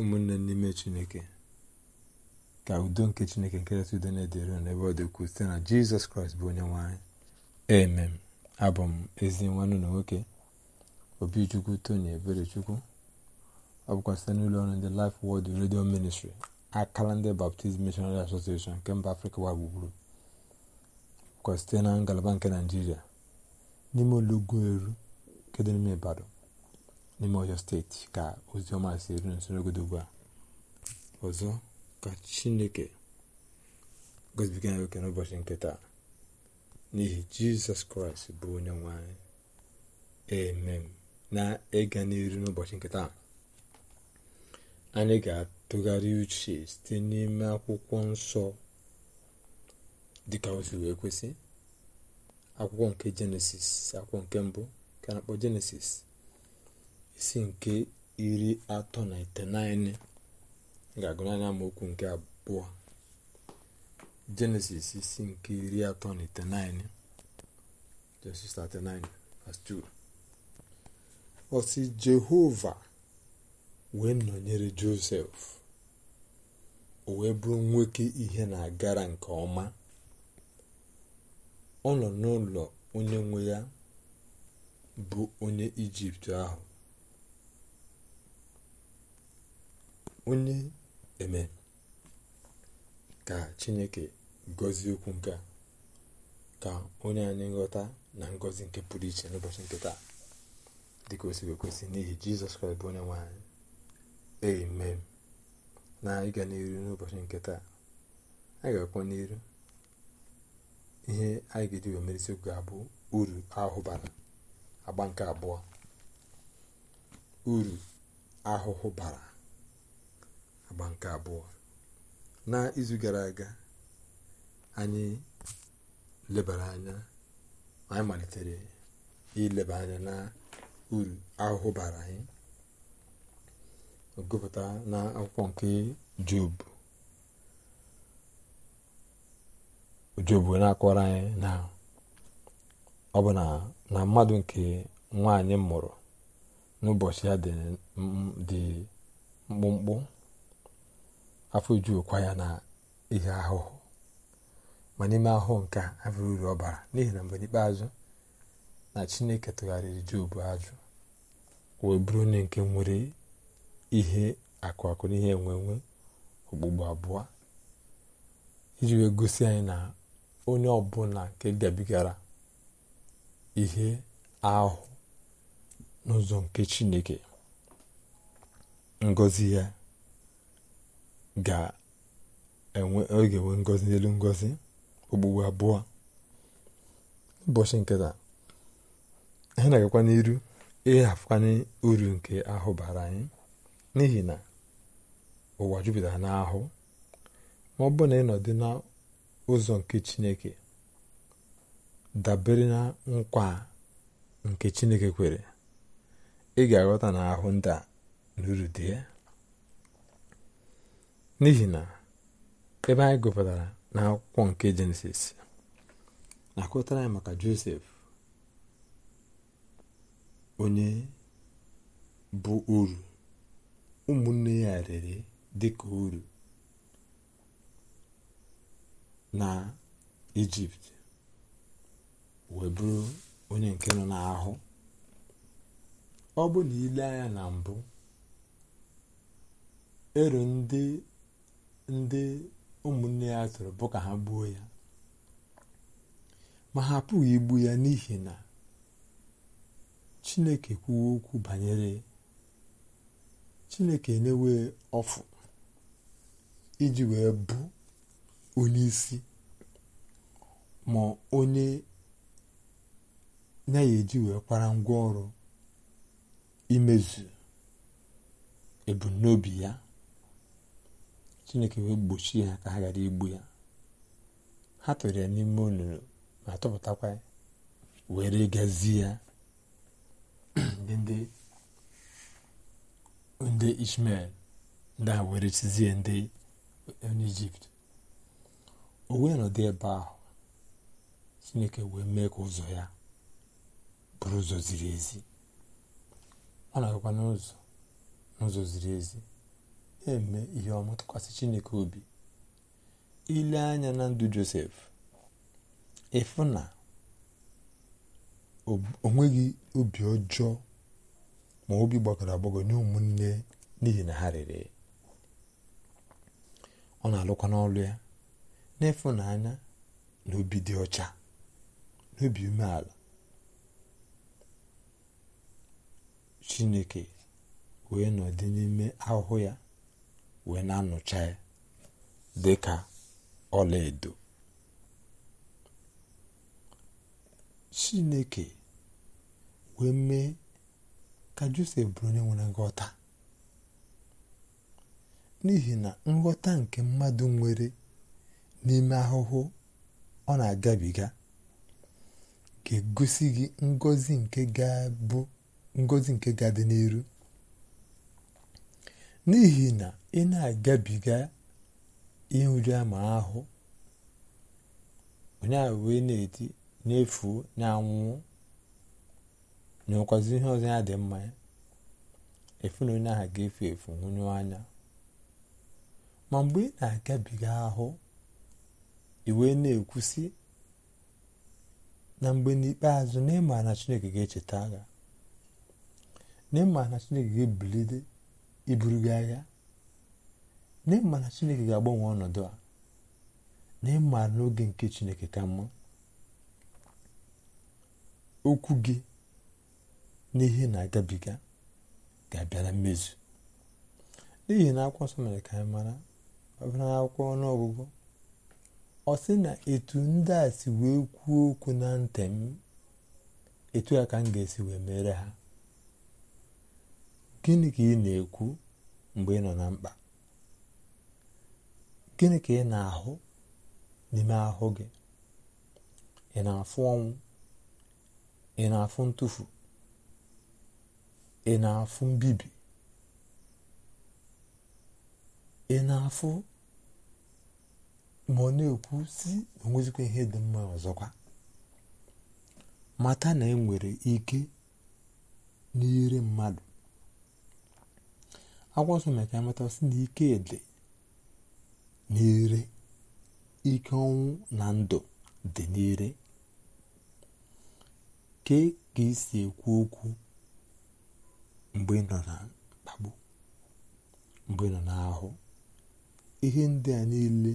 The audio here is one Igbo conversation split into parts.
ụmụnne n'ime chineke ka udo nke chineke nke nketata udo na-edere n'ebe ọ dị ukwuu site na jizọs kraịst bụ onye nwe anyị emem abụ m ezi nwanne na nwoke obichukwu tony eberechukwu ọ bụkwa site n'ụlọ ọrụ ndị Life Word redio ministri akala ndị Baptist Missionary Association nke mba afrịka ụwa gburugburu bụkwa site na ngalaba nke naijiria n'ime olugbu eru nke dị n'ime ibadan n'ime ọcha steeti ka oziọma si eru nso n'ogodo ugbu a ọzọ ka chineke gozibiga nwoke n'ụbọchị nke taa n'ihi jizọs kraịst bụ onye nwanyị anyị emem na ịga n'iru n'ụbọchị nke taa anyị ga-atụgharị uche site n'ime akwụkwọ nsọ dịka ozi wee kwesị akwụkwọ nke jenesis akwụkwọ nke mbụ ka na-akpọ jenesis isi nke iri atọ na iteghete ga-agụ n'anya amaokwu nke abụọ jenesis isi nke iri atọ na iteghete jenesis 39:2 ọ osi jehova wee nọnyere josef o wee bụrụ nwoke ihe na-agara nke ọma ọ nọ n'ụlọ onye nwe ya bụ onye ijipt ahụ onye eme ka chineke gọzie okwu nke a ka onye anyị nghọta na ngọzi nke pụrụ iche n'ụbọchị nke taa dịka o siri ekwesị n'ihi jizọs kraịst bụ onye nwe anyị amen na ịga n'elu n'ụbọchị nke taa anyị ga-akwa n'iru ihe anyị ga-eji merisi okwu ga-abụ uru ahụ bara agba nke abụọ uru ahụhụ bara agba nke abụọ na gara aga anyị lebara anya anyị malitere ileba anya na uru ahụhụ bara anyị gụpụta na akwụkwọ nke job job na-akọrọ anyị na ọ bụ na mmadụ nke nwaanyị mụrụ n'ụbọchị a dị mkpụmkpụ afọ ojukwa ya na ihe ahụhụ ma n'ime ahụ nke a abụrụ uru ọbara n'ihi na mgbe n'ikpeazụ na chineke tụgharịrị jobu ajụ wee bụrụ onye nke nwere ihe akụ akụ n'ihe ihe enwe okpugbo abụọ iji wee gosi anyị na onye ọbụla nke gabigara ihe ahụ n'ụzọ nke chineke ngọzi ya ga-enwe oge ngozi n'elu ngozi okpukpu abụọ ụbọchị nke taa anyị na-agakwa n'iru ịhafụkwanye uru nke ahụ bara anyị n'ihi na ụwa jupụtara n'ahụ ma ọ bụrụ na ịnọdụ n'ụzọ nke chineke dabere na nkwa nke chineke kwere ị ga-aghọta na ahụ ndị a na uru dị ya n'ihi na ebe anyị gụpụtara n'akwụkwọ nke jenesis na akụtara anyị maka josef onye bụ uru ụmụnne ya rere ka uru na ijipt wee bụrụ onye nke nọ n'ahụ ọ bụ na ile anya na mbụ ero ndị ndị ụmụnne ya tụrụ bụ ka ha gbuo ya ma ha apụghị igbu ya n'ihi na chineke kwuo okwu banyere chineke enyewe ọfụ iji wee bụ onye isi ma onye na eji wee kwara ngwa ọrụ imezu ebumnobi ya chineke wee gbochie ya ka ha gara igbu ya ha tụrụ ya n'ime olulu ma tụpụtakwa were gazie ya ndị ishmel ndị a were chizie ndị onye ijipt o wee nọdụ ebe ahụ chineke wee mee ka ụzọ ya bụrụ ụzọ ziri ezi ọ na-agakwa n'ụzọ n'ụzọ ziri ezi eme ihe ọma tụkwasị chineke obi ile anya na ndụ josef ịfụ na onweghị obi ọjọọ ma obi gbagọrọ agbagọ nye ụmụnne n'ihi na ha rere ọ na-alụkwa n'ọlụ ya n'ịfụnanya na obi dị ọcha n'obi umeala chineke wee nọdụ n'ime ahụhụ ya wee na-anụcha ya dị ka ọlaedo chineke wee mee ka josef bụrụ onye nwere nghọta n'ihi na nghọta nke mmadụ nwere n'ime ahụhụ ọ na-agabiga ga-egosi gị ngozi nke ga-abụ ngozi nke ga-adị n'ihi na ị na-agabiga nrịama ahụ onye a wee na-eti na-efuo na-anwụ nyekwazi ihe ọzọ ya dị mma ya efu na onye ahụ ga-efu efu nwụnyụ anya ma mgbe ị na-agabiga ahụ iwee na-ekwusi na mgbe n'ikpeazụ na ịma na chineke ga-echeta agha na ịma na chineke ga-ebilite iburu gị agha na ịma na chineke ga-agbanwe ọnọdụ a na n'oge nke chineke ka mma okwu gị na ihe na-agabiga ga-abịa na mmezu n'ihi na akwụkwọ nsọ mere ka anyị mara ọbụla akwụkwọ ọnụọgụgụ ọ sị na etu ndị a si wee kwuo okwu na ntị m etu a ka m ga-esi wee mere ha gịnị ka ị na-ekwu mgbe ị nọ na mkpa gịnị ka ị na-ahụ n'ime ahụ gị ị na-afụ ọnwụ ị na-afụ ntụfu ị na-afụ mbibi ị na-afụ ma ọ na-ekwu si enwezikwa ihe dị mma ọzọkwa mata na ị e nwere ike n'ire mmadụ akwụkwọ nsọ na ka sị na ike n'ire ike ọnwụ na ndụ dị n'ire kee ka isi ekwu okwu mgbe nọ na mkpagbu mgbe ị nọ n'ahụ ihe ndị a niile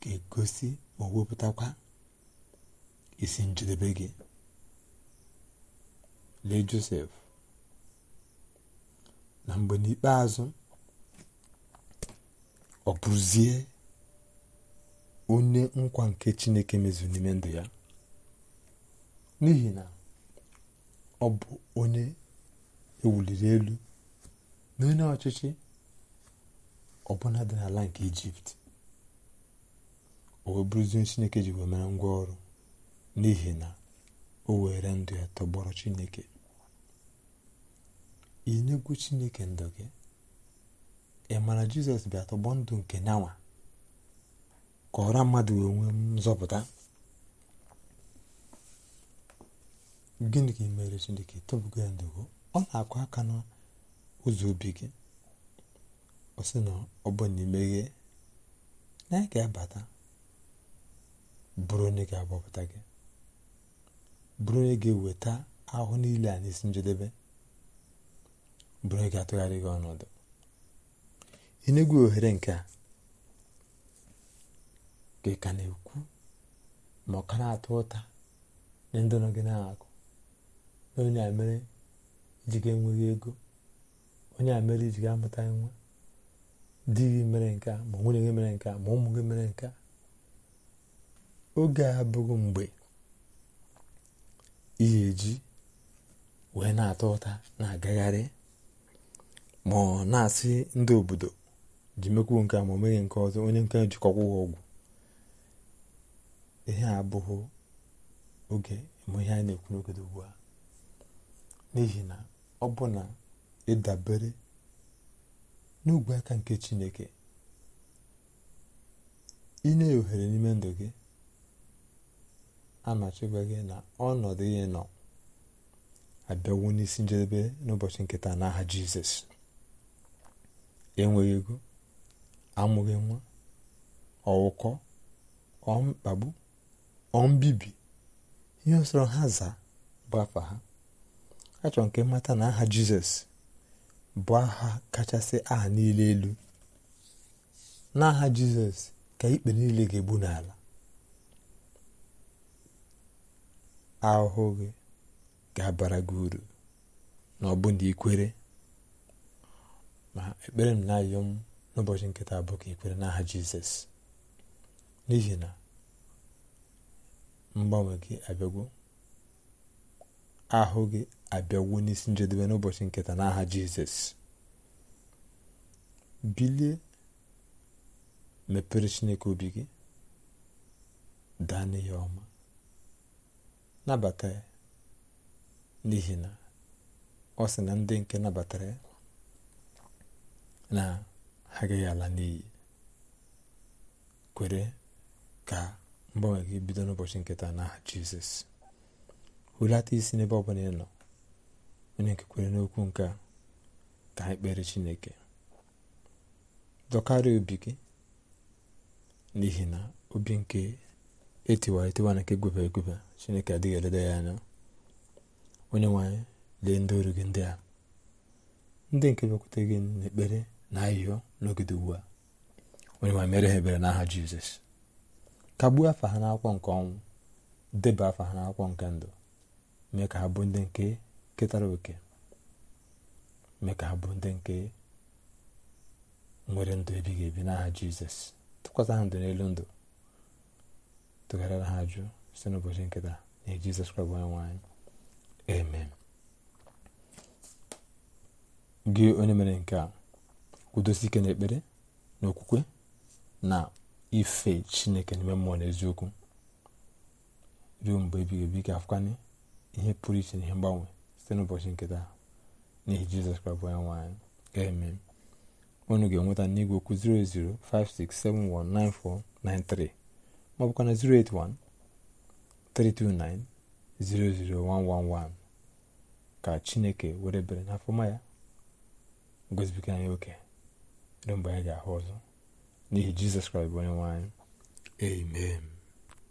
ga-egosi ma wepụtakwa isi njedebe gị lee Josef na mgbe n'ikpeazụ ọ bụzie onye nkwa nke chineke mezuru n'ime ndụ ya n'ihi na ọ bụ onye ewuliri elu na onye ọchịchị ọbụla dị n'ala nke ijipt o wee bụrụzie chineke ji wee mere ngwa ọrụ n'ihi na o were ndụ ya tọgbọrọ chineke inyegwu chineke ndụ gị ị mara jizọs bịa tọgbọ ndụ nke nyanwa ka ọra mmadụ wee nwee nzọpụta gịnị ka mere chineke tọbugo ya ndụgo ọ na-akụ aka n'ụzọ obi gị ọ sị na ọ bụ na imeghe na ya ga-abata bụrụ onye ga-agbapụta gị bụrụ onye ga-eweta ahụ niile a n'isi njedebe bụrụ ị ga-atụgharị gị ọnọdụ enegwu ohere nke a ka ị ka na-ekwu ma ọ ka na-atụ ụta ndị nọ gị na-akụ onye a mere iji ga-enweghị ego onye a mere iji ga-amụta nwa di gị mere nke a ma nwunye gị mere nke a ma ụmụ gị mere nke a oge a abụghị mgbe ị ga-eji wee na atụ ụta na-agagharị ma ọ na-asị ndị obodo ji mekwuo nke a ma o nke ọzọ onye nke jikọkwa ọgwụ ihe abụghị oge ma ihe anyị na-ekwu n'ogodo ugbu a n'ihi na ọ bụ na ịdabere n'ugwu aka nke chineke inye ya ohere n'ime ndụ gị amachikwa gị na ọnọdụ ihe nọ abịawo n'isi njedebe n'ụbọchị nkịta n'aha jizọs enweghị ego amụghị nwa ọwụkọ ọmkpagbu ọmbibi ihe sọrọ ha zaa bụ afa ha achọrọ nke mmata na aha jizọs bụ aha kachasị aha niile elu n'aha jizọs ka ikpe niile ga-egbu n'ala ahụhụ gị ga-abara gị uru na ọbụna ikwere ma ekpere m na arịrịọ m n'ụbọchị nkịta taa bụ ka n'aha jizọs n'ihi na mgbanwe gị abịagwo ahụ gị abịagwo n'isi njedebe n'ụbọchị nketa n'aha jizọs bilie mepere chineke obi gị daa n'ihe ọma nabata ya n'ihi na ọ sị na ndị nke nabatara ya na ha agaghị ala n'iyi kwere ka mgbanwe gị bido n'ụbọchị nketa n'aha jizọs hulata isi n'ebe ọbụla ị nọ onye nke kwere n'okwu nke ka anyị kpere chineke dọkarị obi gị n'ihi na obi nke etiwara etiwa na nke egwebe egwebe chineke adịghị eleda ya anya onye nwanyị lee ndị oru gị ndị a ndị nke bịakwute gị n'ekpere na ahịhịa n'ogede ugbu a onye ma mere ha ebere n'aha jizọs kagbuo afa ha n'akwụkwọ nke ọnwụ deba afa ha n'akwụkwọ nke ndụ mee ka ha bụ ndị nke ketara oke mee ka ha bụ ndị nke nwere ndụ ebighị ebi n'aha jizọs tụkwasị ha ndụ n'elu ndụ tụgharịra ha si site n'ụbọchị nkịta na jizọs kraịst onye nwanyị amen gị onye mere nke a kwudosi ike n'ekpere na okwukwe na ife chineke n'ime mmụọ na eziokwu ruo mgbe ebighị ebi ga-afụkanye ihe pụrụ iche na ihe mgbanwe site n'ụbọchị nke taa n'ihi jizọs kraịst bụ onyenwe anyị ga-eme unu ga-enweta n'igwe okwu 0056719493 ma ọ bụkwa na ka chineke were bere n'afọma ya gozibiga anyị oke ruo mgbe anyị ga-ahụ ọzọ n'ihi jizọs kraịst bụ onye nwe anyị amen